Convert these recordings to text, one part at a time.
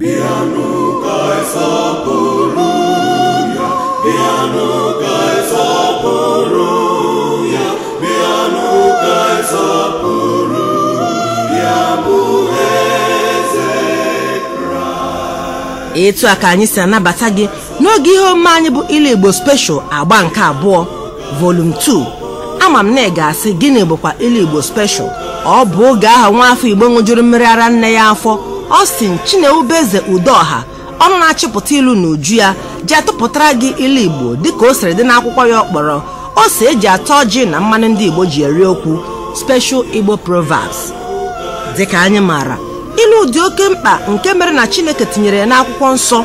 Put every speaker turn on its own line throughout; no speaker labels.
bịanụ ka ịsọpụrụ ya bịanụ ka ịsọpụrụ ya ya bụ
eze Kraịst etu a ka anyị si anabata gị n'oge ihe omume anyị bụ ilu Igbo special agba nke abụọ vol 2 ama m na ị ga-asị gịnị bụkwa ilu Igbo special ọ bụ oge aha nwa afọ Igbo ṅụjuru mmiri ara nne ya afọ Austin Chinewubeze Udoha ọnụ na-achịpụta ilu na uju ya jee tụpụtara gị ilu Igbo dịka o siri dị n'akwụkwọ ya ọkpọrọ ose eji atọ ọjị na mmanụ ndị Igbo ji eri okwu Special Igbo Proverbs dịka anyị maara ilu dị oke mkpa nke mere na Chineke tinyere ya n'akwụkwọ nsọ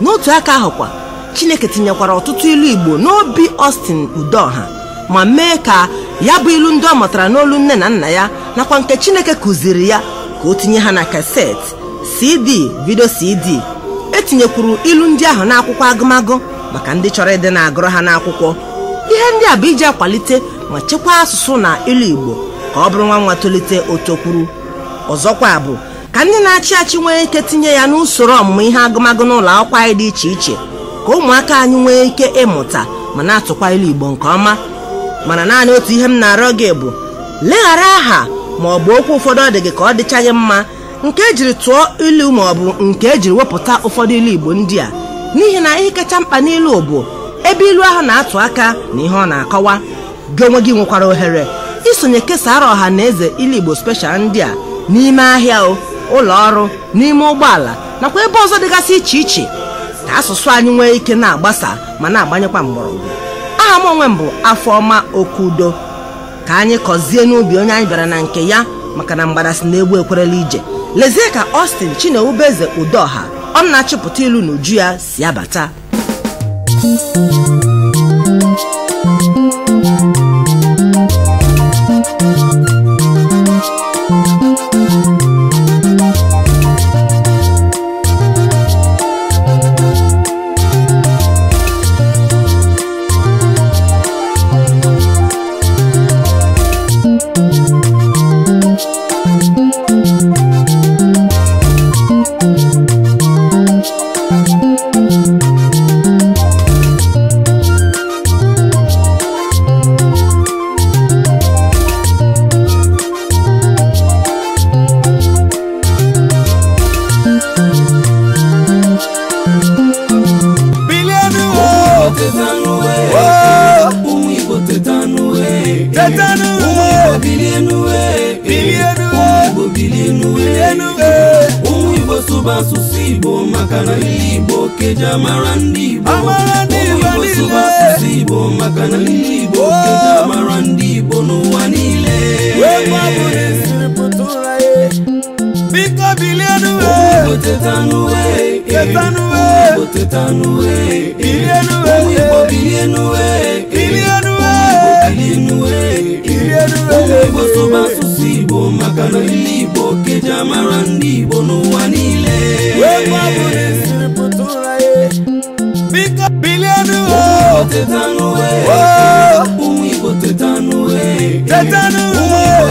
n'otu aka kwa Chineke tinyekwara ọtụtụ ilu Igbo n'obi ọstin Udoha ma mee ka ya bụ ilu ndị ọ mụtara n'olu nne na nna ya nakwa nke Chineke kụziri ya ka o tinye ha na kaseti cd vidio cd etinyekwuru ilu ndị ahụ n'akwụkwọ agụmagụ maka ndị chọrọ ịdị na-agụrụ ha n'akwụkwọ ihe ndị a bụ iji akwalite ma chekwaa asụsụ na ilu igbo ka ọ bụrụ nwa nwa tolite otokwuru ọzọkwa bụ ka ndị na-achị achị nwee ike tinye ya n'usoro ọmụmụ ihe agụmagụ n'ụlọ akwụkwọ anyị dị iche iche ka ụmụaka anyị nwee ike ịmụta ma na-atụkwa ilu igbo nke ọma mana naanị otu ihe m na-arịọ gị bụ leghara aha ma ọ bụ okwu ụfọdụ ọ dị gị ka ọ dịchaghị mma nke ejiri tụọ ilu ma ọ bụ nke ejiri wepụta ụfọdụ ilu igbo ndị a n'ihi na ihe kacha mkpa n'ilu bụ ebe ilu ahụ na-atụ aka na ihe ọ na-akọwa gị onwe gị nwekwara ohere isonye kesara ọha na eze ilu igbo speshal ndị a n'ime ahịa ụlọ ọrụ n'ime ụgbọala nakwa ebe ọzọ dịgasị iche iche ka asụsụ anyị nwee ike na-agbasa ma na-agbanyekwa mgbọrọgwụ aha m onwe m bụ afọma okudo ka anyị kọzie n'ubi onye anyị bịara na nke ya maka na mgbada si na-egbu ekwerela ije lezie ka Austin Chinewubeze Udoha ọ na-achịpụta ilu n'uju ya si abata
tetanu we bilienue bilienue umibo bilienue umibo subasusi igbo maka na igbo keja mara ndị igbo umibo subasusi igbo maka na igbo keja mara ndị igbo n'ụwa niile biko bilienue umibo tetanue tetanue umibo tetanue bilienue umibo bilienue bilienue benue boso basusi bomaka na libo keja mara ndibo nuwa nile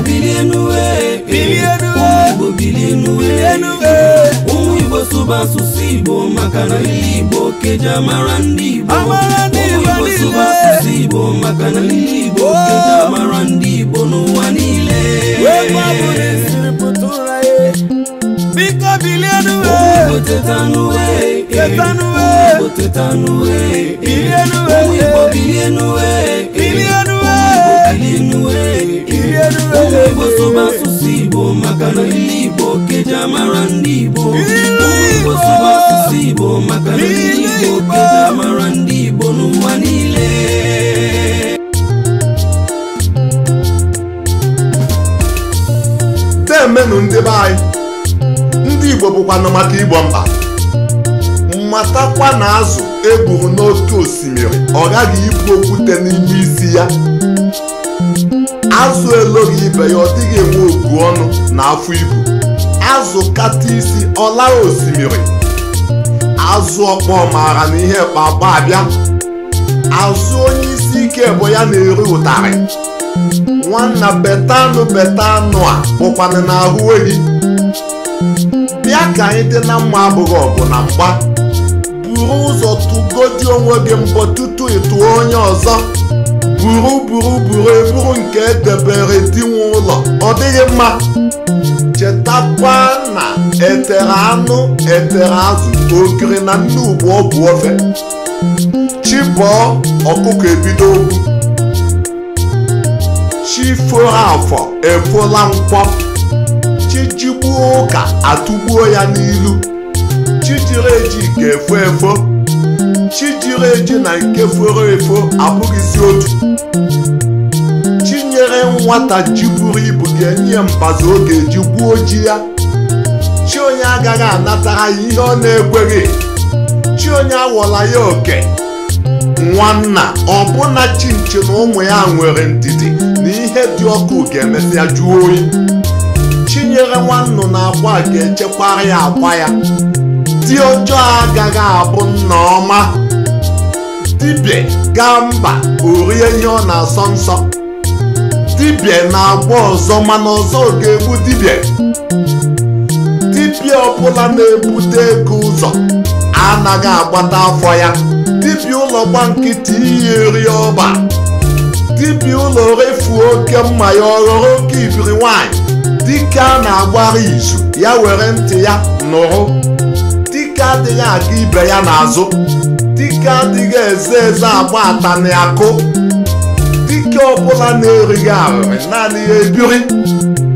bilienuwe basu basusi bomaka na lili bokeja marandibo basu basusi bomaka na lili bokeja oh. marandibo nowanile eh. bikabilianuwe eh. botetanuwe eh. bilianuwe Igbo asụsụ Igbo maka na ndị Igbo keji amara ndị Igbo Igbo asụsụ Igbo maka na ndị Igbo keji amara ndị Igbo n'ụwa niile
temenụ ndị be anyị ndị Igbo bụkwanụ maka Igbo mba matakwa na azụ egburu n'otu osimiri ọ gaghị ibu okwute n'ime isi ya azụ eloghị ibe ya ọ dịghị enwe ogu ọnụ na afọ ibu azụ kata isi ọlara osimiri azụ ọkpọ maara na ihe kpakpa abịa azụ onye isi ike bụ ya na-eri ụtarị nwanna betanụ betanụ a bụkwana na ahụ ehi bịa ka anyị dị na mma abụghị ọgụ na mgba buru ụzọ tụgodi onwe gị mbọ tutu ịtụọ onye ọzọ buru buru buru buru nke edebere di nwe ụlọ ọ dịghị mma chetakwa na etere anụ etere azụ okiri na ndị ugbo ọgwụ ofe chibọọ ọkụkọ ebido okwu afọ efola mkpọ chijigbuo ụka atụgbuo ya n'ilu chijiri eji ga-efo efo chi jiri eji na nke foro efo abụghịzi otu chinyere nwata ji buru ibu ga-enye mbazụ oge ji eji gbuo ji ya chi onye agaghị anatara ya ihe ọ na-ekweghị chi onye awọla ya oke nwanna ọbụna chinchi na ụmụ ya nwere ndidi na ihe dị ọkụ ga-emesịa jụọ oyi chinyere nwannu na akwa ga-echekwara ya agwa ya ndị ọjọọ agaghị abụ nna ọma dibịa gaa mba orie ihe ọ na-asọ nsọ dibịa na-agba ọzọ mana ọzọ ga-egbu dibịa dibịa ọbụla na-ebute ego ụzọ anaghị agbata afọ ya dibịa ụlọ gba nkịtị iyi eri ọba dibịa ụlọ refuo oke mma ya ọghọrọ oke ibiri nwaanyị dike a na-agbara izu ya were ntị ya nụrụ dike adịghị aga ibe ya n'azụ dike adịghị eze eze agba atani akụ dike ọbụla na-erighị arịrị naanị ya ebiri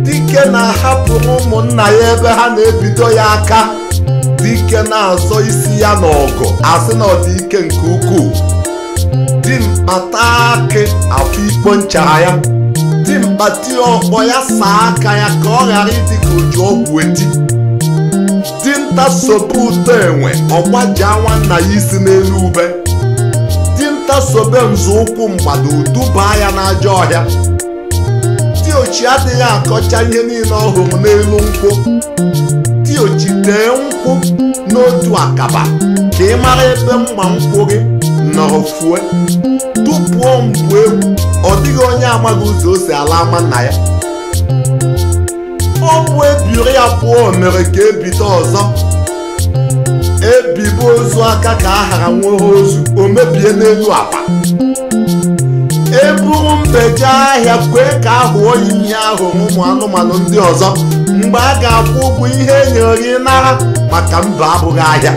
dike na-ahapụrụ ụmụnna ya ebe ha na-ebido ya aka dike na-azọ isi ya n'ọgụ asị na ọ nke ukwuu dimkpa taa akị afọ ikpo nchara ya dimkpa tie ọkpọ ya saa aka ya ka ọ ghara ịdị ka uju ọgwụ eti dinta sobe ụtọ enwe anwa nwanna ya isi n'elu ube dinta sobe nzọụkwụ mgbada udubaa ya n'ajọ ọhịa diochi adịghị akọcha ihe niile ọ hụrụ n'elu nkwụ ochi tee nkwụ n'otu akaba ka ị mara ebe mma nkwụ gị nọrọ fue tupuo mgbu egwu ọ dịghị onye amaghị ụzọ o si ala ama nna ya ọnwụ ebiri abụọ mere ka ebido ọzọ ebibu ozu aka ka a hara nwere ozu o mebie n'elu akpa eburu mbeje ahịa kwee ka a hụọ ihe ahụ ụmụ anụmanụ ndị ọzọ mgbe a ga-akwụ ụgwọ ihe enyere gị nara maka mba abụghị ahịa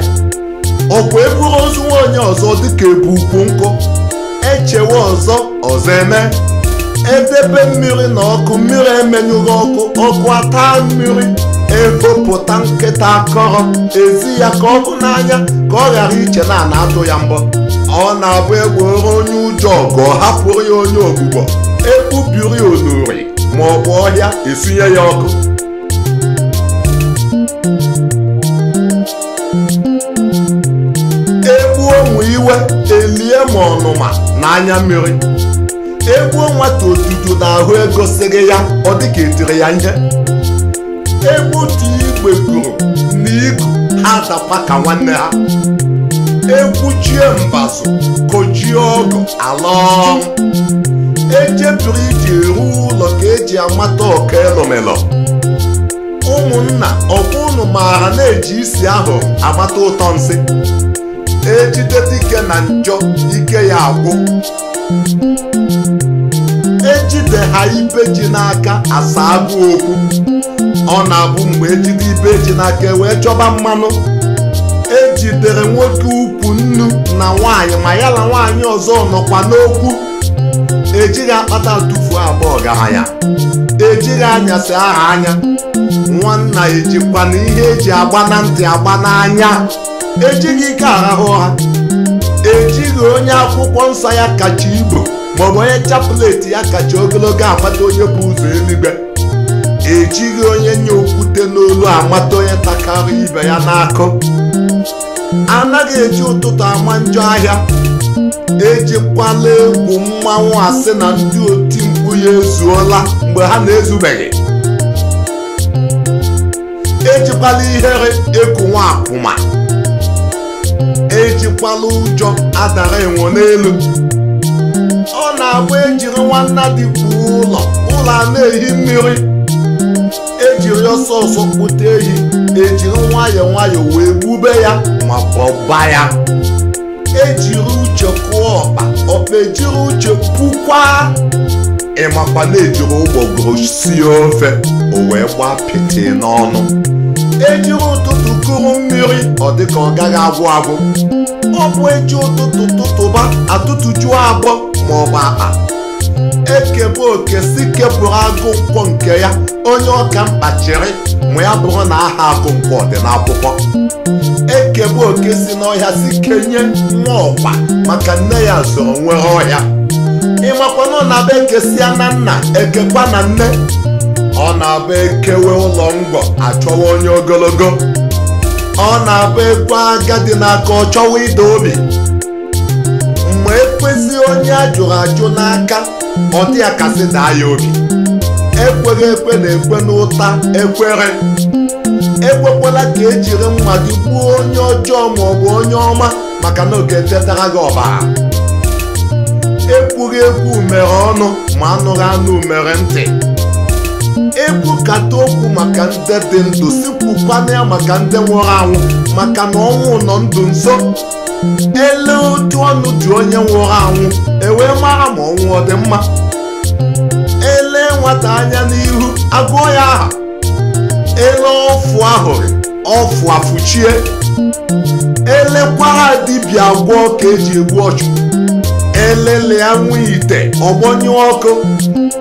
ọkwa eburu ozu nwaonye ọzọ dịka ebu ukwu nkụ echewe ọzọ ọzọ eme edebe mmiri na ọkụ mmiri emenyụghị ọkụ ọkụ ata mmiri egopụta nkịta akọrọ ezi ya ka ọkụ n'anya ka ọ ghara iche na na atụ ya mbọ ọ na-abụ egworo onye ụjọ ọgụ ọ hapụrụ ya onye ogbugbo ekpubiri onuri ma ọ bụ ọhịa esinye ya ọkụ egbuo onwe iwe elie ma ọnụma na mmiri egwu nwata otutu na ego sịrị ya ọ dịka etiri ya nje egbe otu igwe kwuru na iku ha dakwa ka nwanne ha Egbuchie mbazụ kojie ọgụ ala ejepụrụ iji eru ụlọ ka eji amata ọka elomelo ụmụnna ọbụ ụnụ maara na-eji isi ahụ amata ụtọ nsị ejide dike na njọ ike ya agwụ ejide ha ibe ji n'aka asa agụ okwu ọ na-abụ mgbe ejide ibe ji n'aka e wee chọba mmanụ ejidere nwoke ukwu nnu na nwaanyị ma ya na nwaanyị ọzọ nọkwa n'okwu ejighị akpata tufuo agba ọgaranya ejighị anyasị aha anya nwanna ejikwa na ihe eji agba na ntị agba n'anya ejighị ike arahụ ha ejighị onye akwụkwọ nsọ ya kacha igbo maọbụ onye chapleti ya kacha ogologo amata onye bụ ụzọ eluigwe ejighị onye nye okwute n'olu amata onye takara ibe ya n'akụ anaghị eji ụtụtụ ama njọ ahịa ejikwala egwu mmanwụ asị na ndị oti mkpu ya ezuola mgbe ha na-ezubeghị ejikwala ihere eku nwa akwụma ejikwala ụjọ adara enwo n'elu ọ na-agba ejiri nwanna dịkwu ụlọ ụlọ a na-ehi mmiri ejiri ọsọ ọsọ kpụta ehi ejiri nwayọ nwayọ wee gbube ya ma kpọba ya ejiri uche kụọ ọkpa ọkpa ejiri uche kwukwa ịmakwa na-ejiri ụgbọgoro sie ofe o wee gbaa pịtị n'ọnụ ejiri ụtụtụ kụrụ mmiri ọ dịka ọ gaghị agwụ agwụ ọ bụ eji ụtụtụ tụtụba atụtụjuo agbọ bụ akpa ekebụ oke si kepụrụ agụ nke ya onye ọka mkpachiri ma ya bụrụ na aha agụ nkwọ dị n'akwụkwọ ekebụ oke si n'ọhịa si kenye nwa ọkpa maka nne ya zụrụ nwere ọhịa ịmakwana na be ekesia na nna ekekwa na nne ọ na-abụ ekewe ụlọ ngwọ achọwa onye ogologo ọ na-abụ ekwe agadi n'aka ọ chọwa ide obi ma ekwezi onye a jụrụ ajụ n'aka ọ ya kasị daa ya obi ekweghị ekwe na-ekwe n'ụta ekwere ekwekwala ka ejiri mma gị onye ọjọọ bụ onye ọma maka na oge chetara gị ọbara ekwughị ekwu umere ọnụ ma anụghị anụ umere ntị ekwukata okwu maka ndị dị ndụ sikwukwana ya maka ndị nwụrụ anwụ maka na ọnwụ nọ ndụ nso ele otu ọnụ dị onye nwụrụ anwụ ewee mara ma ọnwụ ọ dị mma ele nwata anya n'ihu agụọ ya aha ele ọfụ ahụrụ ọfụ afụchie elekwara dibịa agwọ ka eji egbu ọchụ elele ya nwe ite ọgbọnyụ ọkụ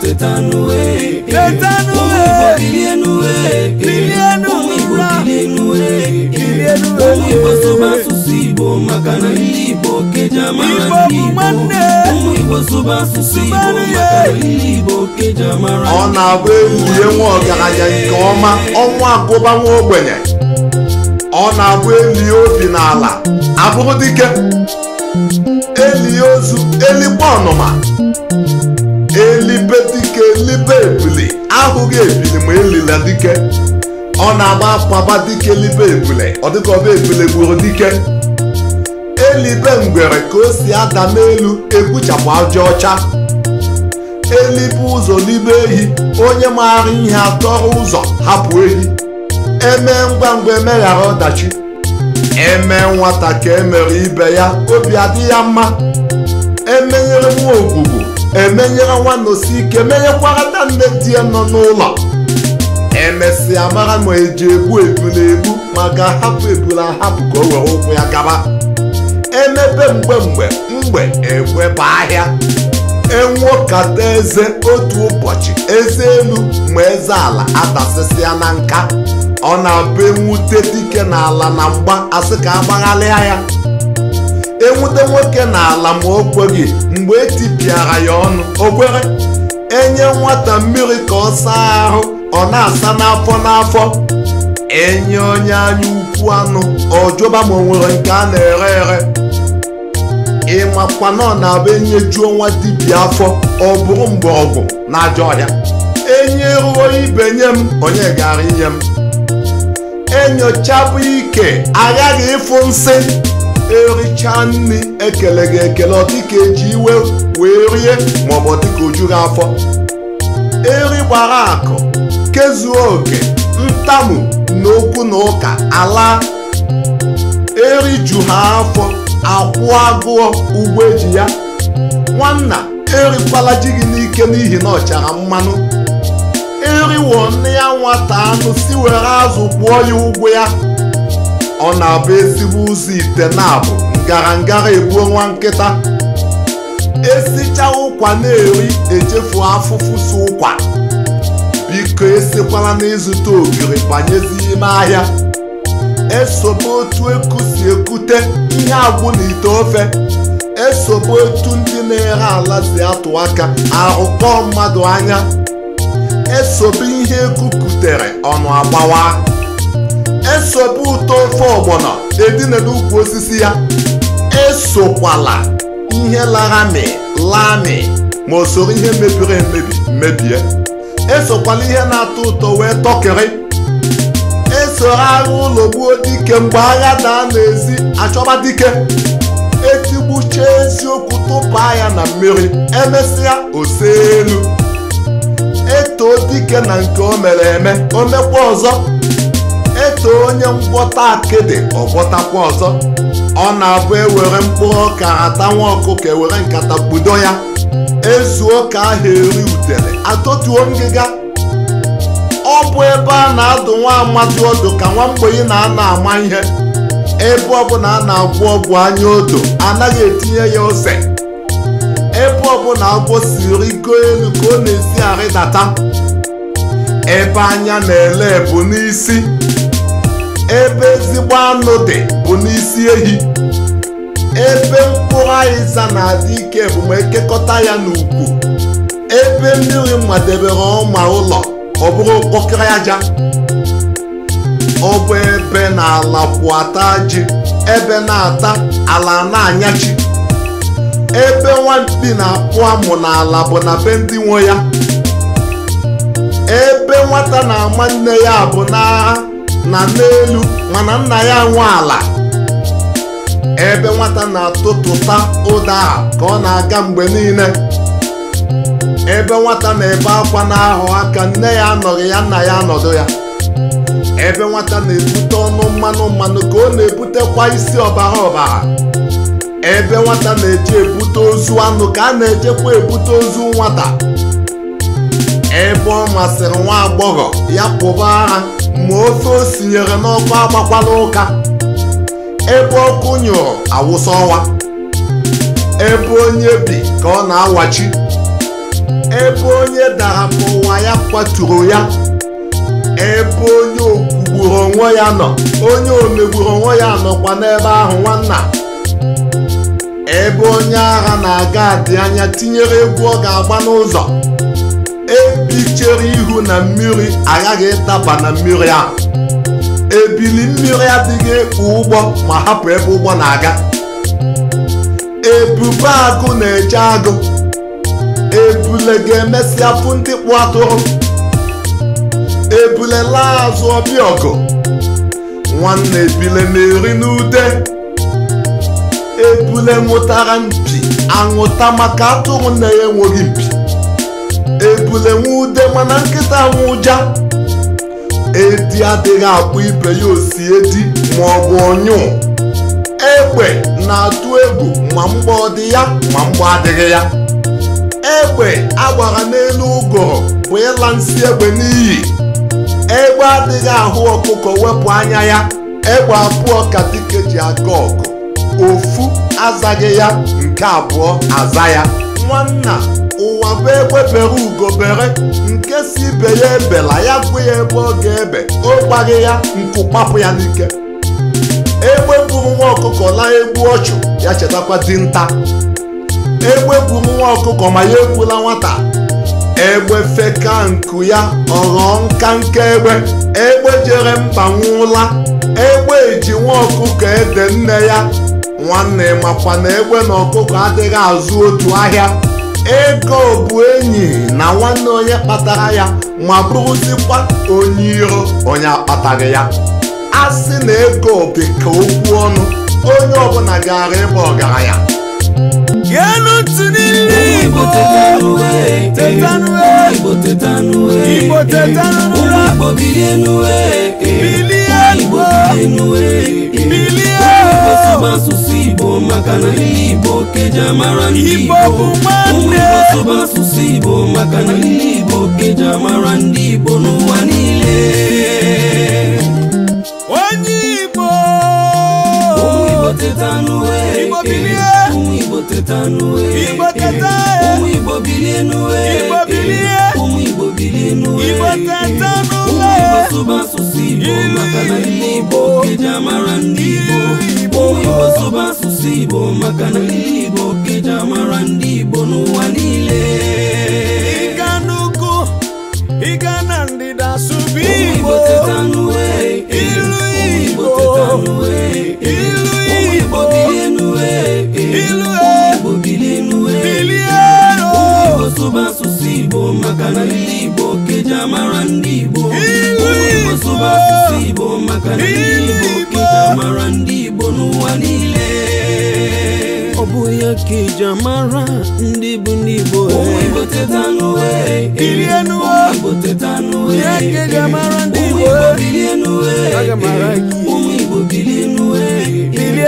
teta n'uwe teta n'uwe ụmụ Igbo bilie n'uwe bilie n'ụra ụmụ Igbo
ọ na-abụ ewurie nwa ọgaranya nke ọma ọnwa agụba nwa ogbenye ọ na-abụ eli obi n'ala abụrụ dike eli ozu elikwa ọnụma elibe dike elibe ebule ahụghị ebili ma elila dike ọ na-agba akpaba dike elibe ebule ọ dịka ọba ebule gburu dike elibe ngwere ka o si ada n'elu egbuchapụ aja ọcha elibe ụzọ n'ibe ehi onye maara ihe atọrọ ụzọ hapụ ehi eme ngwa ngwa emeghara ọdachi eme nwata ka emere ibe ya obi adị ya mma emenyere nwa ogbugbo emenyere n'osi ike menyekwara nne di ya nọ n'ụlọ emesịa mara ma eji egbu ebu egbu maka hapụ ebula ahapụ ka o were ụkwụ ya gaba emebe mgbe mgbe mgbe bụ ahịa kata eze otu ụbọchị eze elu ma eze ala adasịsịa na nka ọ na-abụ enwute dike n'ala na mgba asị ka agbaghalịa ya enwute nwoke n'ala ma o kweghị mgbe etipịara ya ọnụ o enye nwata mmiri ka ọ saa ahụ ọ na-asa n'afọ n'afọ enye onye anya ukwu anụ ọjọba ma o nwere nke a na-ere ere ịmakwana ọ na-abụ enyejuo nwa dibịa afọ ọ bụrụ mgbọrọgwụ na ajọ ọhịa enye ruo ibe nye m onye gara inye m enyochabụ ike aghaghị ịfụ nsị ericha nri ekele gị ekele ọdịka eji iwe wee rie maọbụ ọdịka ojuru afọ eri gbara akụ kezuo oke ntamu na okwu na ụka ala eri ju ha afọ akwụ agụọ ugbo eji ya nwanna erikwala ji gị n'ike n'ihi na ọchara mmanụ eriwo nne ya nwata anụ si were azụ gwụọ ya ụgwọ ya ọ na-abụ ezigbo ụzọ ite na-abụ ngara ngara egbuo nwa nkịta esicha ụkwa na-eri echefu afụfụ si ụkwa biko esikwala n'ịzụta ogiri banyezi ime ahịa esobe otu eku si ekute ihe agbụ na ite ofe esobe otu ndị na-ere ala si atụ aka arụkọ mmadụ anya esobe ihe ekukutere ọnụ agbawa esobe ụtọ ofe ọgbọnọ edina n'ukwu osisi ya esokwala ihe laghami lami ma o soro ihe mebiri emebi mebie esokwala ihe na-atọ ụtọ wee tọkịrị eso agha ụlọ gbuo dike mgbe agha daa ezi achọba dike etigbucha eziokwu tụpaa ya na mmiri emesịa ose elu etoo dike na nke o mere eme o mekwa ọzọ eto onye ngwọta akịdị ọgwọtakwa ọzọ ọ na-abụ ewere mkpụrụ ọka ata nwa ọkụkọ ewere nkata gbudo ya ezuo ka ahụ eri udele atọtuo ngịga ọ bụ ebe a na-adụ nwa amadi ọdụ ka nwa mgbenye na ana ama ihe ebe ọbụla a na agwụ ọgwụ anya odo anaghị etinye ya ose ebe ọbụla agwọ siri iko elu ka ọ na-esi arịdata ebe anya na-ele bụ n'isi ebe ezigbo anụ dị bụ n'isi ehi ebe mkpụrụ aịza na-adị ike bụ ma ekekọta ya n'ukwu ebe mmiri madebere ọma ụlọ ọ bụrụ mkpọkịrị aja ọ bụ ebe na ala kwụ ata ji ebe na-ata ala na-anyachi ebe nwampi na-apụ amụ n'ala bụ na be ndị nwe ya ebe nwata na-ama nne ya bụ n'agha na n'elu mana nna ya nwe ala ebe nwata na-atụtụta ụda a ka ọ na-aga mgbe niile ebe nwata na-ebe akwa na-ahụ aka nne ya anọghị ya nna ya anọdụ ya ebe nwata na-ebute ọnụ mmanụ mmanụ ka ọ na-ebutekwa isi ọbara ọbara ebe nwata na-eje ebute ozu anụ ka a na-ejekwa ebute ozu nwata ebe ọ masịrị nwa agbọghọ ya pụba agha ma ofe o sinyere n'ọkụ agbakwala ụka ebe ọkụ nyụrụ awụsa ọwa ebe onye bi ka ọ na-awachi ebe onye dara mụwa ya kwaturu ya ebe onye okwugburu onwe ya nọ onye omegburu onwe ya nọkwa n'ebe ahụ nwanna ebe onye agha na-aga adị anya tinyere egwu ọ ga-agba n'ụzọ ebichere ihu na mmiri agaghị ịtaba na mmiri a ebili mmiri adịghị ekpu ụgbọ ma hapụ ebe ụgbọ na-aga ebube agụ na-eje agụ ebule ga-emesịa afụ ndị kpụ atụrụ ebule laa azụ ọbịa nwanne ebule na-eri n'ude ebule nwụtara mpi anwụta maka atụrụ na enweghị mpi ebule nwe ude mana nkịta nwe edi adịghị akpụ ibe ya osi edi ma ọ bụ ọnyụ egbe na-atụ egwu ma mgbe ọ dị ya ma mgbe adịghị ya egbe agbara n'elu ụgọrọ bụ ịla nsị egbe n'iyi egbe adịghị ahụ ọkụkọ wepụ anya ya egbe abụọ ka dike ji aga ọgụ ofu azaghị ya nke abụọ aza ya nwanna ụwa bụ ekwefere ugobere nke si ibe ya ebela ya kwụ ya ebe ọ ga-ebe ọ gbaghị ya nkụ kpapụ ya n'ike egbe gburu nwa ọkụkọ laa egbu ọchụ ya chetakwa dinta egbe gburu nwa ọkụkọ ma ya egbula nwata egbe feka nku ya ọghọọ nka nke egbe egbe jere mba nwụla egbe eji nwa ọkụkọ ede nne ya nwanne makwa na egbe na ọkụkọ adịghị azụ otu ahịa ego bụ enyi na nwanne onye kpatara ya ma bụrụzikwa onye iro onye akpataghị ya a sị na ego dị ka okwu ọnụ onye ọbụla gara ịba ọgaranya
bilie asụsụ Igbo maka na ndị Igbo keja mara ndị Igbo ụmụ asụsụ Igbo maka na ndị Igbo keja mara ndị Igbo n'ụwa niile onye Igbo Igbo ụmụ Igbo bilie n'uwe Igbo ndị Igbo asụsụ Igbo maka na Igbo keja mara ndị Igbo baso basusi bomaka na lili boketa marandi bonuwa lile ikanuku ikanandida subibotetanue eh, iluibotetanue eh, iluibobilenue eh, iluibobilenue e. baso basusi bomaka na lili boketa marandi bo baso basusi bomaka na lili boketa marandi n'ụwa niile ọ bụghị mara ndị bụ Igbo teta teta ga-amara ndị Igbo ụmụ Igbo bilie n'uwe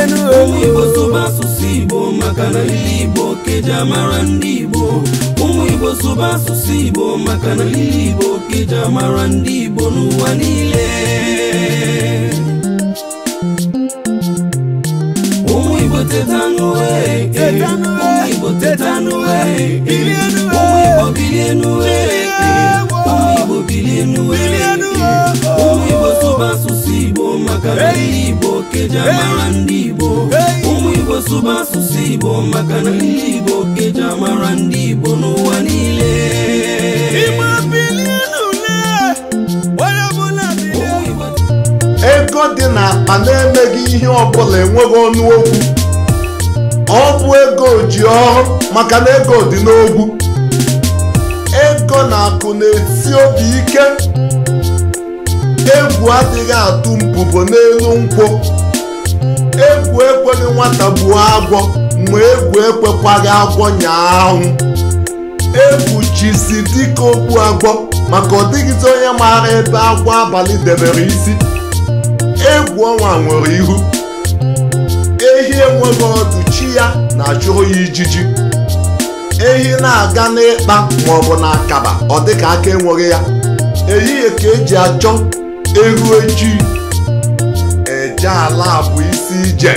ụmụ Igbo eh? eh? sụba asụsụ Igbo maka na ndị Igbo keji amara ndị Igbo ụmụ amara ndị Igbo tetanue ụmụ Igbo tetanue ụmụ Igbo bilie n'ue ụmụ Igbo bilie n'ue ụmụ Igbo sụba asụsụ Igbo maka na ndị Igbo keja mara ndị Igbo ụmụ Igbo sụba asụsụ Igbo maka na ndị Igbo keja mara ndị Igbo n'ụwa niile ego dị n'akpa
na-emeghị ihe ọbụla enweghị ọnụ okwu ọ bụ ego ji ọrụ maka na ego dị n'ogwu ego na akụ na-esi obi ike egwu adịghị atụ mbubo n'elu nkwụ egwu ekweghị nwata gbuo agwọ mgbe egwu ekwekwaghị agwọ nyaahụ egwu jizi dịka okpu agwọ maka ọ dịghịzi onye maara ebe agwọ abalị debere isi egwu ọnwa nwere ihu ehi enweghị ọdụ ya na-achụhụ ya ijiji ehi na-aga n'ịkpa maọbụ na akaba ọ dịka aka enweghị ya ehihie ka eji achọ ehu ejii eje ala bụ isi ije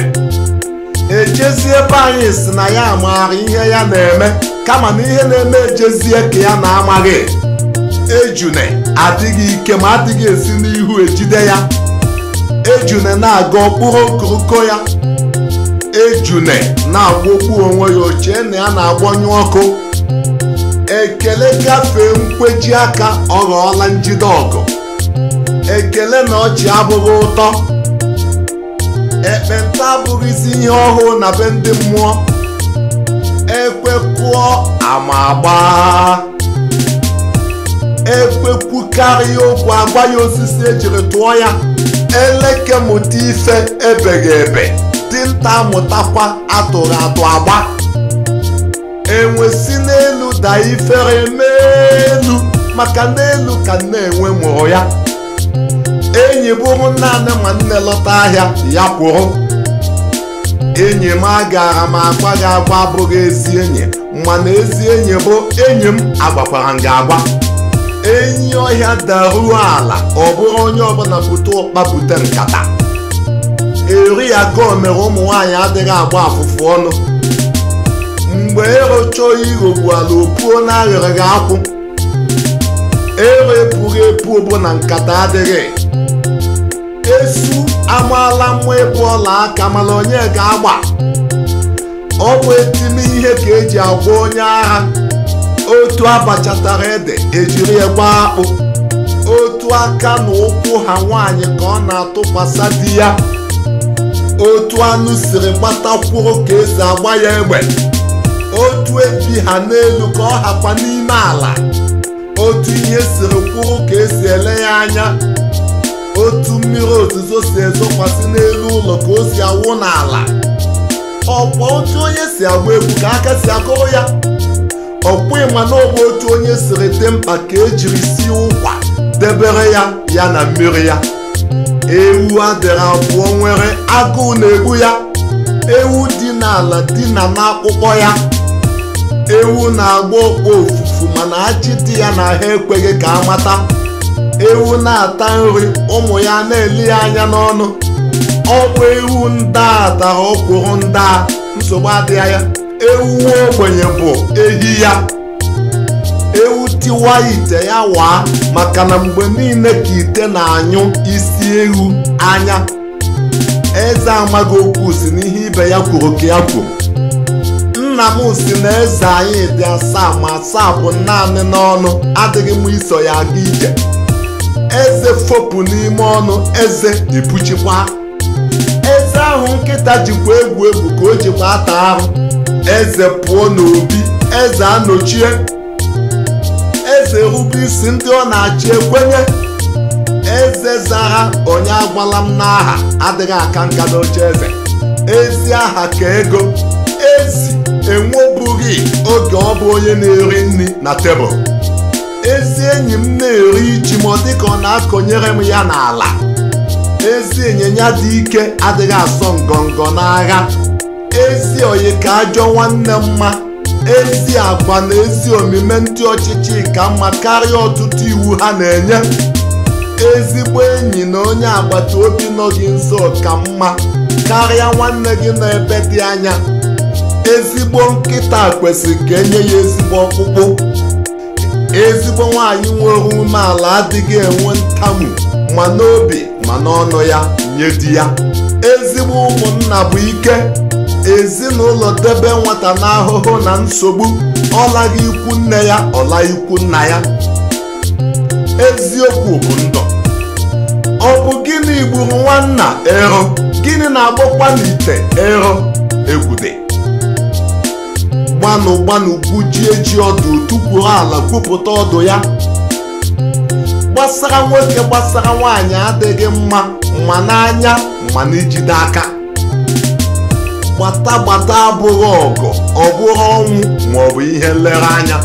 ejezie ebe anyị si na ya maara ihe ya na-eme kama na ihe na-eme ejezie ka ya na-amaghị ejune adịghị ike ma adịghị esi n'ihu ejide ya ejune na-aga ọkpụrụ okoroko ya ejune na-agwọkwu onwe ya ochie na ya na-agbanyụ ọkụ ekele gafee nkweji aka ọ ghọọla njide ọgụ ekele na ọchị abụghị ụtọ ekpenta isi ihe ọhụụ na be ndị mmụọ ekwekụọ ama agbaa ekwekwukarịa okwu agwa ya osisi ejiri tụọ ya eleke mụta ife ebeghị ebe dinta Mụtakwa atụrụ atụ agba enwe si n'elu daa ifere n'elu maka n'elu ka na enwe mụrụ ya enyi bụrụ naanị ma nne lọta ahịa ya kwụrụ enyi m agara m agwa gị agba bụghị ezi enyi mana ezi enyi bụ enyi m agbakwara m gị agba. enyi ọhịa daruo ala ọ bụrụ onye ọbụla bute ụkpa nkata eri ya mere ụmụ nwaanyị adịghị agba afụfụ ọnụ mgbe erocha oyi ghogbuala opuo na aghịrịghị akwụ ero epụghị epu ogbo na nkata adịghị esu amaala mma ịbụ ọla aka mana onye ga-agba ọ bụ etime ihe ka eji agwa onye agha otu abachatara ede ejiri egbe akpụ otu aka na ụkwụ ha nwaanyị ka ọ na-atụkwasa di ya otu anụ siri gbata gbatakwuo ka esi agba ya egbe otu eji ha n'elu ka ọ hakwa n'ime ala otu ihe siri kwuru ka esi ele ya anya otu mmiri ozuzo si ezokwasị n'elu ụlọ ka o si awụ n'ala ọkwa otu onye si agba egwu ka aka si akụrụ ya ọkpụ ịma na otu onye siri dị mkpa ka ejiri si ụkwa debere ya ya na mmiri ya ewu adịrị abụọ nwere agụụ na-egbu ya ewu dị n'ala dị na n'akpụkpọ ya ewu na-agba ọkpọ ofufu mana ajị dị ya na ha ekweghị ka amata ewu na-ata nri ụmụ ya na-eli ya anya n'ọnụ ọkpụ ewu nda dara ọkwụrụ nda nsogbu adịghị ya ewu ogbenye bụ ehi ya ewu tiwa ite ya waa maka na mgbe niile ka ite na-anyụ isi ewu anya eze amaghị okwu si n'ihe ibe ya kwuru ka ya kwuru nna m si na eze anyị dị asaa ma asaa bụ naanị n'ọnụ adịghị m iso ya aga ije eze fopụ n'ime ọnụ eze ibuchikwa eze ahụ nkịta jikwa egwu egwu ka o jikwa ata ahụ eze pụọ n'obi eze anochie eze isi ndị ọ na-achị ekwenye eze zaha onye agwala m n'aha adịghị aka nka n'oche eze ezi aha ka ego ezi enwebụghị oge ọ bụ onye na-eri nri na tebụl ezi enyi m na-eri ji ma ọ dị ka ọ na-akọnyere m ya n'ala ezi ịnyịnya dị ike adịghị asọ ngọngọ n'agha ezi oyi ka ajọ nwanne mma ezi agwa na ezi omume ndị ọchịchị ka mma karịa ọtụtụ iwu ha na-enye ezigbo enyi na onye agbata obi nọ gị nso ka mma karịa nwanne gị nọ ebe dị anya ezigbo nkịta kwesịrị ka enye ya ezigbo ọkpụkpụ ezigbo nwaanyị nwere umeala adịghị enwe ntamu ma n'obi ma n'ọnụ ya nye di ya ezigbo ụmụnna bụ ike ezinụlọ debe nwata n'ahụhụ na nsogbu ọlaghị ikwu nne ya ọla nna ya eziokwu bụ ndụ ọ bụ gịnị gburu nwanna ero gịnị na-agbọkwa n'ite ero egwude gbanụ gbanụ ji ọdụ tupuo ala kwupụta ọdụ ya gbasara nwoke gbasara nwaanyị adịghị mma ma n'anya ma n'ijide aka gbata gbata abụghị ọgụ ọ bụghị ọnwụ maọbụ ihe nlereanya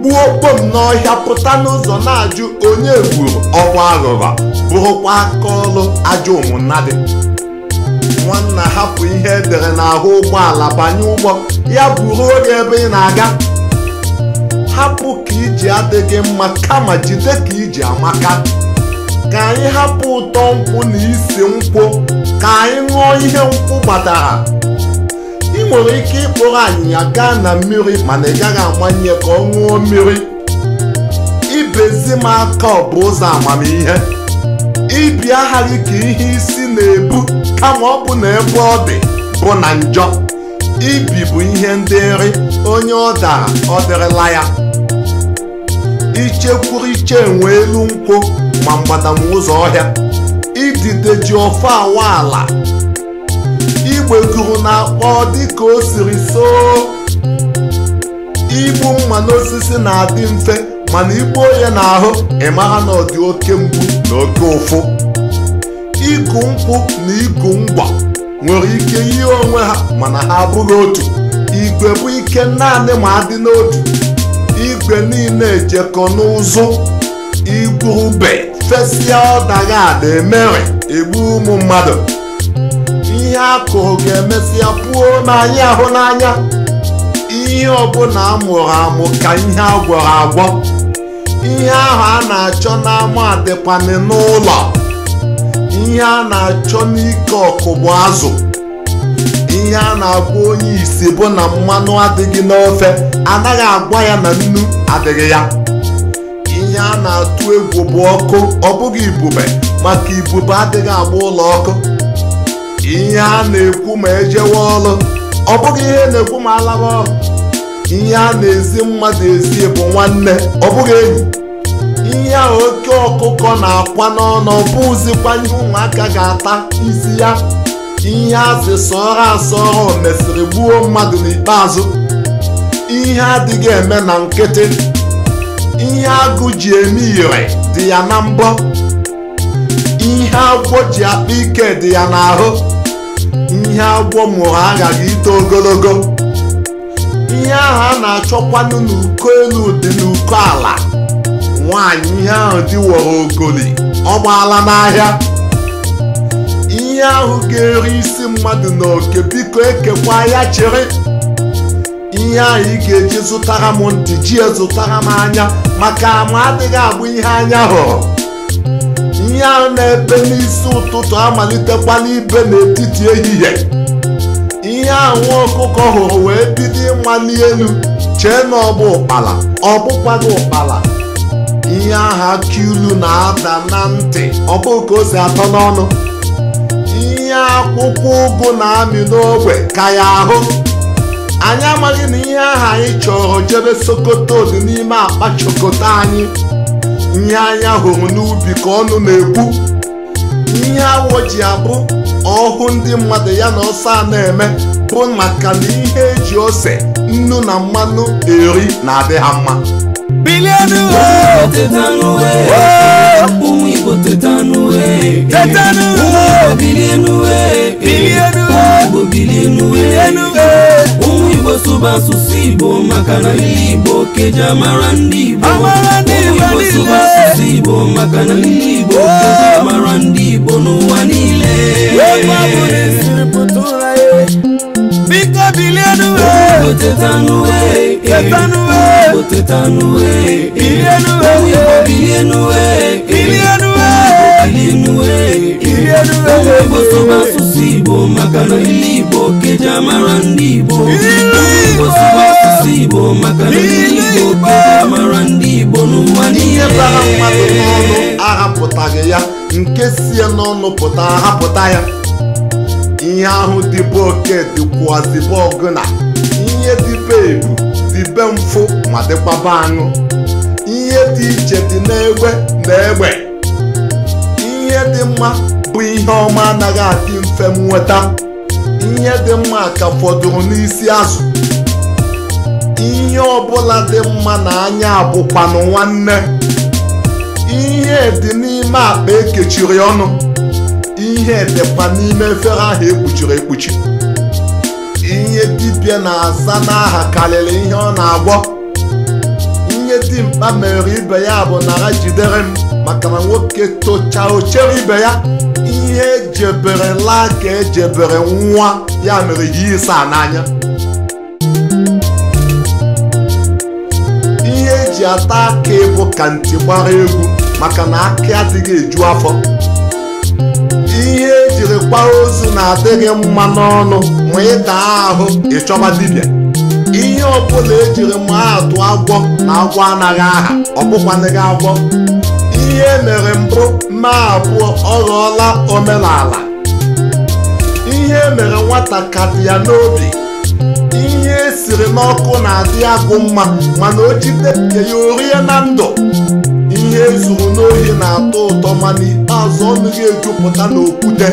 gbuo kpom n'ọhịa pụta n'ụzọ na-ajụ onye gburu ọkwa aghụghọ bụrụkwa aka ọrụ ajọ omunadị nwanna hapụ ihe edere n'ahụ ụgbọala banye ụgbọ ya bụrụ oge ebe ị na-aga hapụ ka iji adịghị mma kama jide ka iji amaka ka anyị hapụ ụtọ nkwụ na isi nkwụ ka anyị ṅụọ ihe nkwụ kpatara ị nwere ike ịkpọrọ anyịnya gaa na mmiri mana ị gaghị amanye ka ọ ṅụọ mmiri ibezi m aka ọ bụ ụzọ amamihe ibi aghara ka ihe isi na-ebu kama ọ bụ na ebe ọ bụ na njọ ibi bụ ihe ndị nri onye ọ dara ọ dịrịla ya ichekwuru iche nwe elu nkwụ ma mgbadama ụzọ ọhịa idide ji ofe awa ala igbeguru na akpọ dịka o siri soo igbu mma n'osisi na-adị mfe mana igbuo ya n'ahụ ịmara na ọ dị oke mgbu na oke ụfụ ịkụ nkwụ na ịkụ ngwa nwere ike yie onwe ha mana ha abụghị otu igwe bụ ike naanị ma adị n'otu igwe niile ejekọ n'ụzụ igwurube fesịa ọdaghị ada emere egbu ụmụ mmadụ ihe a kụrụ ga-emesịa pụọ n'anya ahụ n'anya ihe ọbụla amụrụ amụ ka ihe agwọrọ agwọ ihe ahụ a na-achọ n'ama adịkwanị n'ụlọ ihe a na-achọ n'ike ọkụ bụ azụ ihe a na-agwa onye isi bụ na mmanụ adịghị n'ofe anaghị agwa ya na nnu adịghị ya ihe a na-atụ egwu bụ ọkụ ọ bụghị ibube maka ibube adịghị agba ụlọ ọkụ ihe a na-ekwu ma ejewe ọrụ ọ bụghị ihe na-ekwu ma alaba ọrụ ihe a na-ezi mmadụ ezi bụ nwanne ọ bụghị enyi ihe a oke ọkụkọ na-akwa n'ọnụ ọ ndị ụmụaka ga-ata isi ya ihe asị sọọ asọ asọọ mesịrị gbuo mmadụ n'ikpeazụ ihe adịghị eme na nkịtị ihe agụ ji eme ire dị ya na mbọ ihe agwọ ji akpa ike dị ya n'ahụ ihe agwọ mụrụ aghaghị ito ogologo ihe ahụ a na-achọkwanụ n'uko elu dị n'uko ala nwaanyị ihe ahụ diworo ogoli ọ gbaala n'ahịa ihe ahụ ga-eri isi mmadụ n'oke biko ekekwa ya chere ihe ahụ ị ga-eji zụtara m ntị ji zụtara m anya maka ama adịghị abụ ihe anya hụrụ ihe ahụ na-ebe n'isi ụtụtụ amalitekwa n'ibe n'etiti ehihie ihe ahụ ọkụkọ hụrụ wee bido ịmali elu chee na ọ bụ ụkpala ọ ụkpala ihe ahụ akụ ilu na-ada na ntị ọ ka o si atọ n'ọnụ ihe akwụkwọ ụgụ na-amị n'ogbe ka ya ahụ anyị amaghị na ihe ahụ anyị chọrọ jebe sokoto dị n'ime akpa chokota anyị ihe anya hụrụ n'ubi ka ọnụ na-ekwu ihe awọ ji abụ ọhụ ndị mmadụ ya na ọsọ a na-eme bụ maka na ihe eji ose nnu na mmanụ eri na-adị ha mma Bilionu o.
Tetanu we. Ohun Igbo tetanu we. Tetanu o. Ohun Igbo bilionu we. Bilionu o. Ohun Igbo bilionu we. Bilionu o. Ohun Igbo suba susu Igbo maka na ndị Igbo keji amara ndị Igbo. Amara ndị Igbo niile. Ohun Igbo suba susu Igbo maka na ndị Igbo keji amara ndị Igbo n'ụwa niile. Wee gbapụ n'ezi. ewegosọba asụsụ igbo maka na ile igbo keja mara ndị igbo ewegosọba asụsụ igbo maka na ile igbo keja mara ndị igbo n'ụwa bara mmadụ n'ọnụ
ahapụtaghị ya nke sie n'ọnụ pụta ahapụta ya ihe ahụ dịbụ oke dịkwuazibụ dibe ebu be mfụ ma dịkwaba aṅụ ihe dị iche dị n'egbe na egbe ihe dị mma bụ ihe ọma anaghị adị mfe nweta ihe dị mma ka fọdụrụ n'isi azụ ihe ọbụla dị mma na anya abụkwanụ nwanne ihe dị n'ime akpa ekechiri ọnụ ihe dịkwa n'ime efere ahụ ekpuchiri ekpuchi ihe dibịa na-aza n'aha karịrị ihe ọ na-agwọ ihe mkpa mere ibe ya bụ nara jidere m maka na nwoke tocha ochere ibe ya ihe jebere laa ka ejebere nwa ya mere ji ịsa n'anya ihe eji ata aka ịbụ ka ntị gbara egwu maka na aka adịghị eju afọ ihe tiri kwa ozu na-adịghị mma n'ọnụ ma ịta ahụ ịchọba dibịa ihe ọbụla ejiri ma atụ agwọ na agwọ anaghị aha ọ bụkwanịghị agwọ ihe e mere mbụ ma abụọ ọ ghọọla omenala ihe e mere nwata ka dị ya n'obi ihe esiri n'ọkụ na-adị agụ mma mana o jide ya orie na ndụ ihe zuru n'ohi na-atọ ụtọ ma n'ikpeazụ ọnụ gị ejupụta n'okwute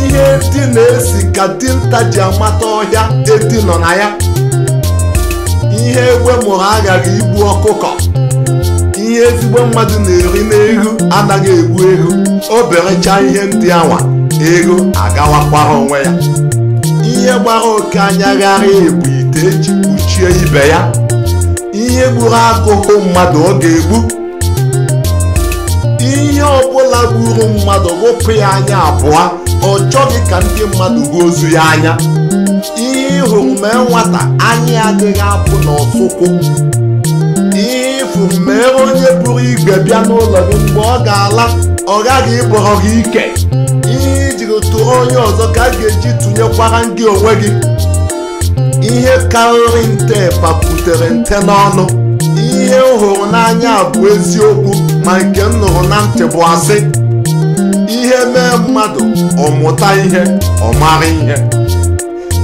ihe dị na-esi ka dinta ji amata ọhịa edi nọ na ya ihe egbe mụrụ aghaghị igbu ọkụkọ ihe ezigbo mmadụ na-eri n'ego anaghị egbu ego obere ihe ndị anwa ego agawakwara onwe ya ihe gbara oke anya gharịa bụ ite eji kpuchie ibe ya ihe gburu akụkụ mmadụ ọ ga-egbu ihe ọbụla gburu mmadụ wụpụ ya anya abụọ ọ chọghị ka ndị mmadụ gbuo ozu ya anya ihe ịhụrụ mee nwata anya adịghị apụ n'ọsụkwụ ihe ịfụrụ mee onye pụrụ igwe bịa n'ụlọ gị mgbe ọ ga-ala ọ gaghị ịbọrọ gị ike ihe ijiri tụrụ onye ọzọ ka a ga-eji tụnyekwara ndị onwe gị ihe karịrị nte paputere nte n'ọnụ ihe m hụrụ n'anya bụ eziokwu ma nke m nụrụ na ntị bụ asị ihe mee mmadụ ọmụta ihe ọ mara ihe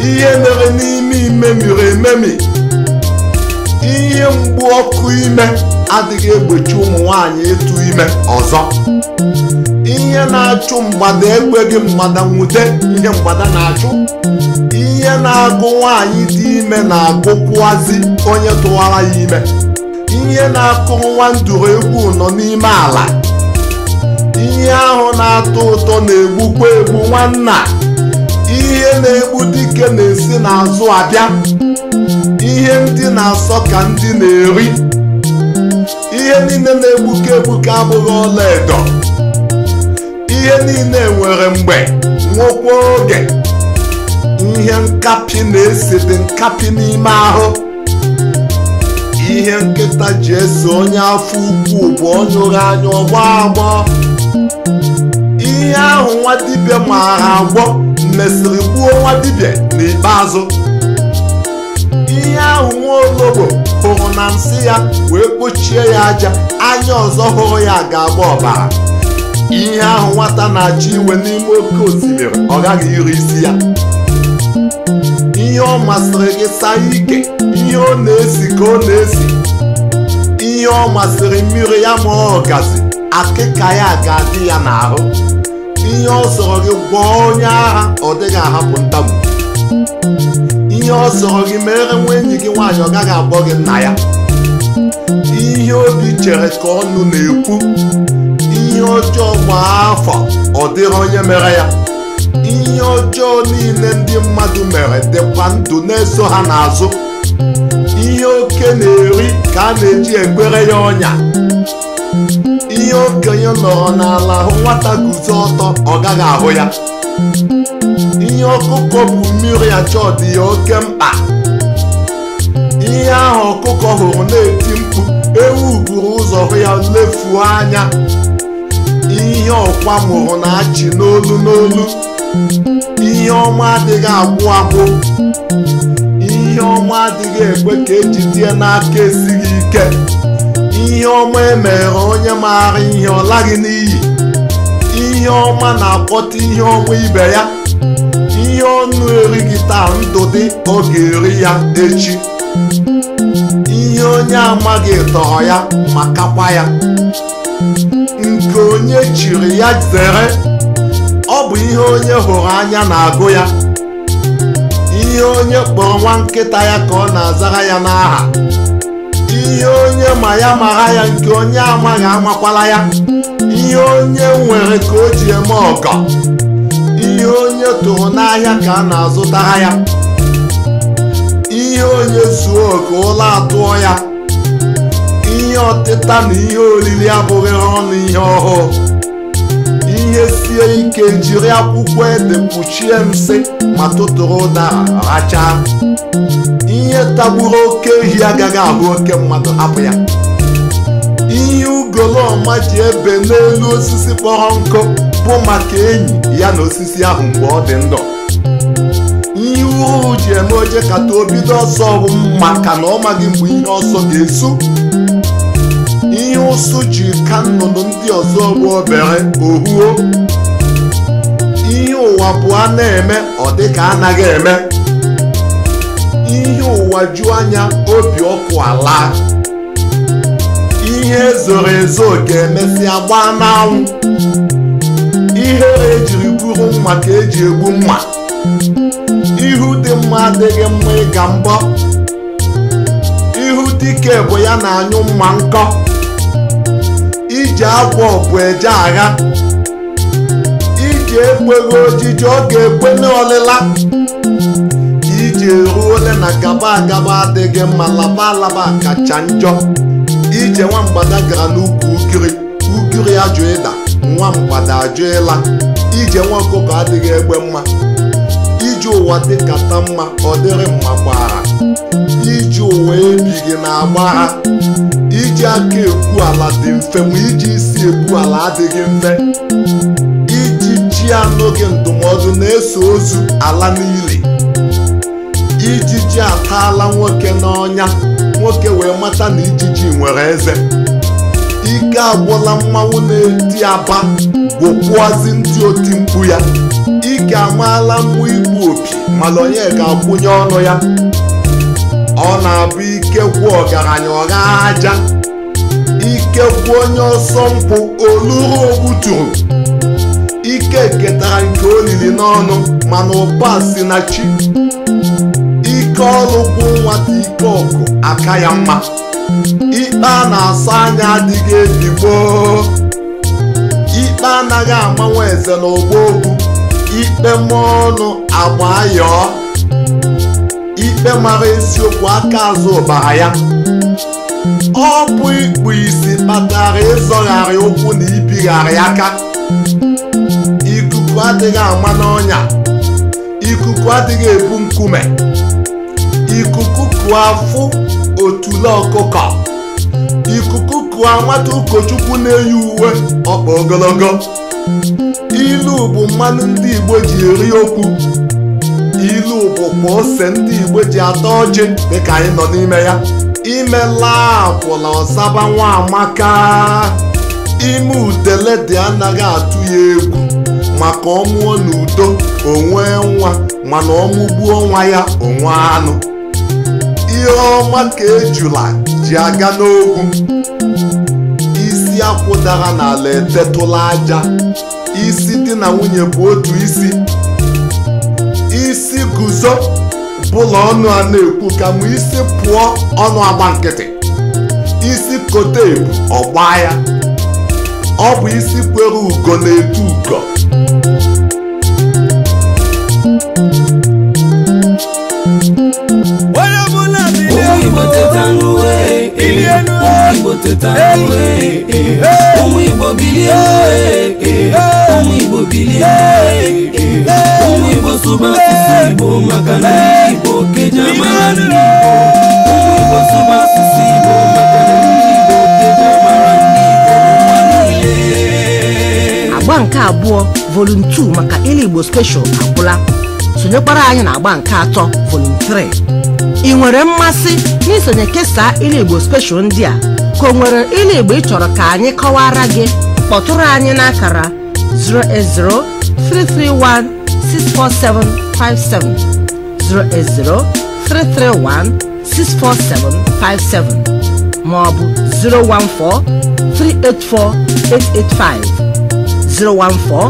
ihe mere n'ime ime miri ememi ihe mgbu ọkụ ime adịghị egbochi ụmụ nwanyị ịtụ ime ọzọ ihe na-achụ mgbada ekweghị mgbada nwute ihe mgbada na-achụ ihe na-agụ nwaanyị dị ime na-agụkwuazi onye tụwara ya ime ihe na-akụ nwa nduru egwu nọ n'ime ala ihe ahụ na-atọ ụtọ na-egbukwa egbu nwanna ihe na-egbu dike na-esi n'azụ abịa ihe ndị na-asọ ka ndị na-eri ihe niile na-egbuke egbuke abụghị edo. ihe niile nwere mgbe nwekwa oge ihe nkapị na dị nkapị n'ime ahụ ihe nkịta ji ese onye afọ ukwu bụ onye ụra anya ọgba agbọ ihe ahụ nwa dibịa maara agwọ mesịrị gbuo nwa dibịa n'ikpeazụ ihe ahụ nwa ologbo hụrụ na nsị ya wee kpochie ya aja anya ọzọ hụrụ ya ga-agba ọbara ihe ahụ nwata na-achọ iwe n'ime oke osimiri ọ gaghị iri isi ya ihe ọ masịrị gị saa ike ihe ọ na-esi ka ọ na-esi ihe ọ masịrị mmiri ya ma ọ gazi akịka ya ga-adị ya n'ahụ ihe ọ sọrọ gị gwọọ onye agha ọ dịghị ahapụ ntamu ihe ọ sọrọ gị mere nwa enyi gị nwaanyị ọ gaghị agbọ gị nna ya ihe obi chere ka ọnụ na-ekwu ihe ọjọọ kwa afọ ọ dịrị onye mere ya ihe ọjọọ niile ndị mmadụ mere dịkwa ndụ na-eso ha n'azụ ihe oke na-eri ka a na-eji egbere ya ọnya ihe okenye nọrọ n'ala hụ nwata guzo ọtọ ọ gaghị ahụ ya ihe ọkụkọ bụ mmiri achọ dị ya oke mkpa ihe ahụ ọkụkọ hụrụ na-eti mkpu ewu buru ụzọ hụ ya lefuo anya ihe ọkwa mụrụ na-achị n'olu n'olu ihe ọma adịghị agwụ agwụ ihe ọma adịghị ekwe ka ejidie n'aka esighị ike ihe ọma emere onye maara ihe ọ laghị n'iyi ihe ọma na-akpọta ihe ọma ibe ya ihe ọnụ erighị taa ndụ dị ọ ga-eri ya echi ihe onye amaghị tọrọ ya ma kakwa ya nke onye chiri ya zere ọ bụ ihe onye hụrụ anya na-agụ ya ihe onye kpọrọ nwa nkịta ya ka ọ na-azara ya n'aha ihe onye ma ya mara ya nke onye amaghị amakwala ya ihe onye nwere ka o ji eme ọkọ. ihe onye tụrụ n'ahịa ka a na-azụtara ya ihe onye zuo ka ụlọ atụọ ya ihe ọtịta na ihe olili abụghị ọnụ ihe ọhụụ ihe sie ike jiri akwụkwọ ede mkpuchie nsị ma tụtụrụ ụdara rachaa ihe tagburu oke ehi agaghị abụ oke mmadụ abụ ya ihe ọma ji ebe n'elu osisi kpọrọ nkụ bụ maka enyi ya na osisi ahụ mgbe ọ dị ndụ ihe uru ji eme oje kata o ọsọ bụ maka na ọ maghị mgbe ihe ọsọ ga-esu ụsụ ji ka nnụnụ ndị ọzọ bụ obere ohuo ihe ụwa bụ a na-eme ọ dị ka anaghị eme ihe ụwa ju anya obi ọkụ ala ihe ezoro ezo ga na gbaa n'anwụ ihere ejiri gburu mma ka eji egbu mma ihu dị mma adịghị mma ịga mbọ ihu dike bụ ya na anyụ mma nkọ ji akwa ọpụ eje agha iji ekweghị ojiji ọ ga-ekwe n'ọlịla iji ruo ole na gaba agaba adịghị mma laba alaba kacha njọ ije mgbada gara n'ukwu ukiri ukiri ajụ ịda nwamgbada ajụ ịla ije nwa ọkụkọ adịghị egbe mma iji ụwa dịkata mma ọ dịrị mma gbara iji ụwa gị na-agba ha iji aka egwu ala dị mfe ma iji isi egwu ala adịghị mfe iji chi n'oge ndụmọdụ na-eso ozu ala niile ijiji ataala nwoke n'ọnya nwoke wee mata na ijiji nwere eze ike agwụla mmanwụ na-eti aba gwụkwuazi ndị oti mkpu ya ike amaala mmụ igbu opi mana onye ga-akwụnye ọnụ ya ọ na-abụ ikekwu ọgaranya ọgha aja ikekwu onye ọsọ mpụ oluru ogbuturu ike ketara nke olili n'ọnụ mana ụba si na chi ike ọrụ bụ nwata ike ọgụ aka ya mma ikpe a na-asa anya adịghị ebibo ikpe anaghị amanwe eze na ogbo okwu ikpe mmụọ ọnụ agba yọọ ikpe mara esiokwu aka azụ ụbara ya ọ bụ ịkpụ isi kpatara ịzọgharị ụkwụ na ibigharị aka ikuku adịghị ama n'ọnya ikuku adịghị ebu nkume ikuku kụọ afụ otule ọkụkọ ikuku kụọ nwata ụkọchukwu na-eyi uwe ọkpa ogologo ilu bụ mmanụ ndị Igbo ji eri okwu ilu bụkwa ose ndị igbo ji atọ ọjị dịka anyị nọ n'ime ya imela apụla ọsaba nwa amaka ime udele dị anaghị atụ ya egwu maka ọmụọ n'udo onwe nwa mana ọmụgbuo nwa ya onwe anụ ihe ọma ka ejula ji aga n'ogwu isi akwụdara n'ala etetụla aja isi di na nwunye bụ otu isi isi guzo bụla ọnụ a na-ekwu ka m isi pụọ ọnụ agba nkịtị isi kote ebu ọgba ya ọ bụ isi kwere ugo na-etu ugo
enu Igbo teta nwe Ohun Igbo bilie Ohun Igbo bilie Ohun Igbo suba susu Igbo maka na Igbo keja mara ndị Igbo Igbo suba susu Igbo
Agba nke abụọ Volume 2 maka Ele Igbo Special agwụla sonyekwara anyị na agba nke atọ Volume 3 ị nwere mmasị n'isonye kesaa ilu igbo ndị a ka o nwere ilu igbo ị chọrọ ka anyị kọwara gị kpọtụrụ anyị n'akara 08033164757 08033164757 maọbụ 014384885 014384885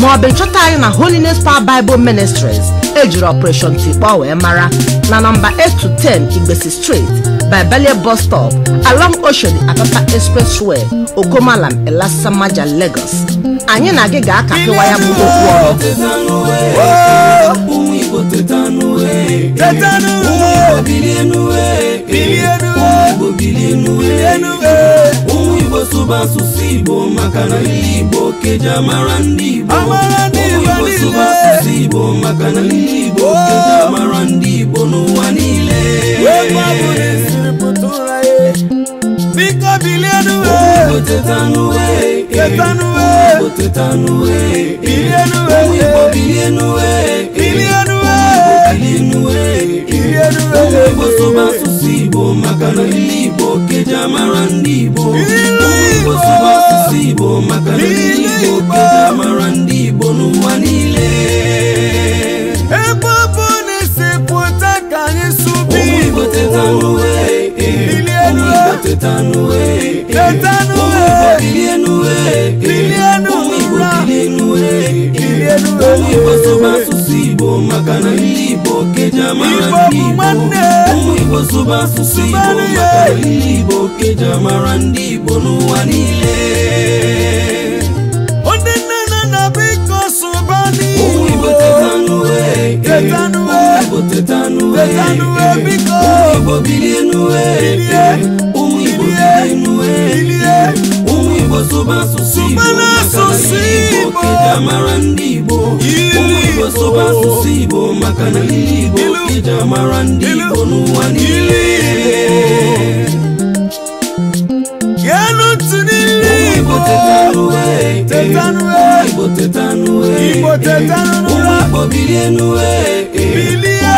maọbụ ịchọta anyị na Holiness Power Bible Ministries ejiri operation tikpa wee mara na nọmba eight to ten igbesi street by belie bus stop along oshodi apapa expressway okomalam elasamaja lagos anyị na gị ga-akapịwa ya bụ okwu ọrụ igbo e.
E. sibo makana libo marandibo nowanile Tetanue, tetanue, tetanue, bilionue, bilionue, bilionue, bilionue, bilionue, bosoba susibo makana libo keja marandibo, bosoba susibo makana libo keja marandibo. Eh. omiboso eh. eh. basusi bomaka na liboke jamarandibomiboso basusi bomaka na liboke jamarandibonuwanile weta nuwe biko Igbo bilie nuwe bilie Ụmụ Igbo bilie nuwe bilie Ụmụ Igbo soba asụsụ Igbo maka na Igbo kịja mara ndị Igbo Ụmụ Igbo soba asụsụ Igbo maka na Igbo kịja mara ndị Igbo n'ụwa niile Yenu tunili Igbo tetanuwe Tetanuwe Igbo tetanuwe Igbo tetanuwe Ụmụ Igbo bilie nuwe bilie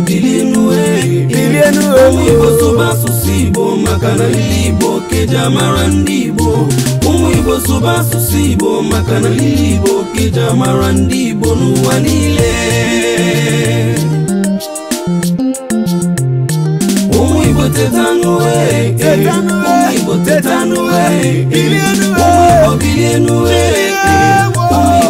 bilinue bilinue umuyibosuba susibo makana lilibo keja mara ndibo umuyibosuba susibo makana lilibo keja mara ndibo nuwanile umuyibotetanue umuyibotetanue umuyibobilinue